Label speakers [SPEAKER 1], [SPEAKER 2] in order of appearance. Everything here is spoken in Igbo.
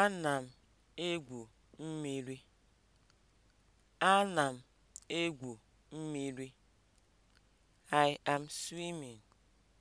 [SPEAKER 1] Ana m egwu mmiri. Ana m egwu mmiri. I am swimming.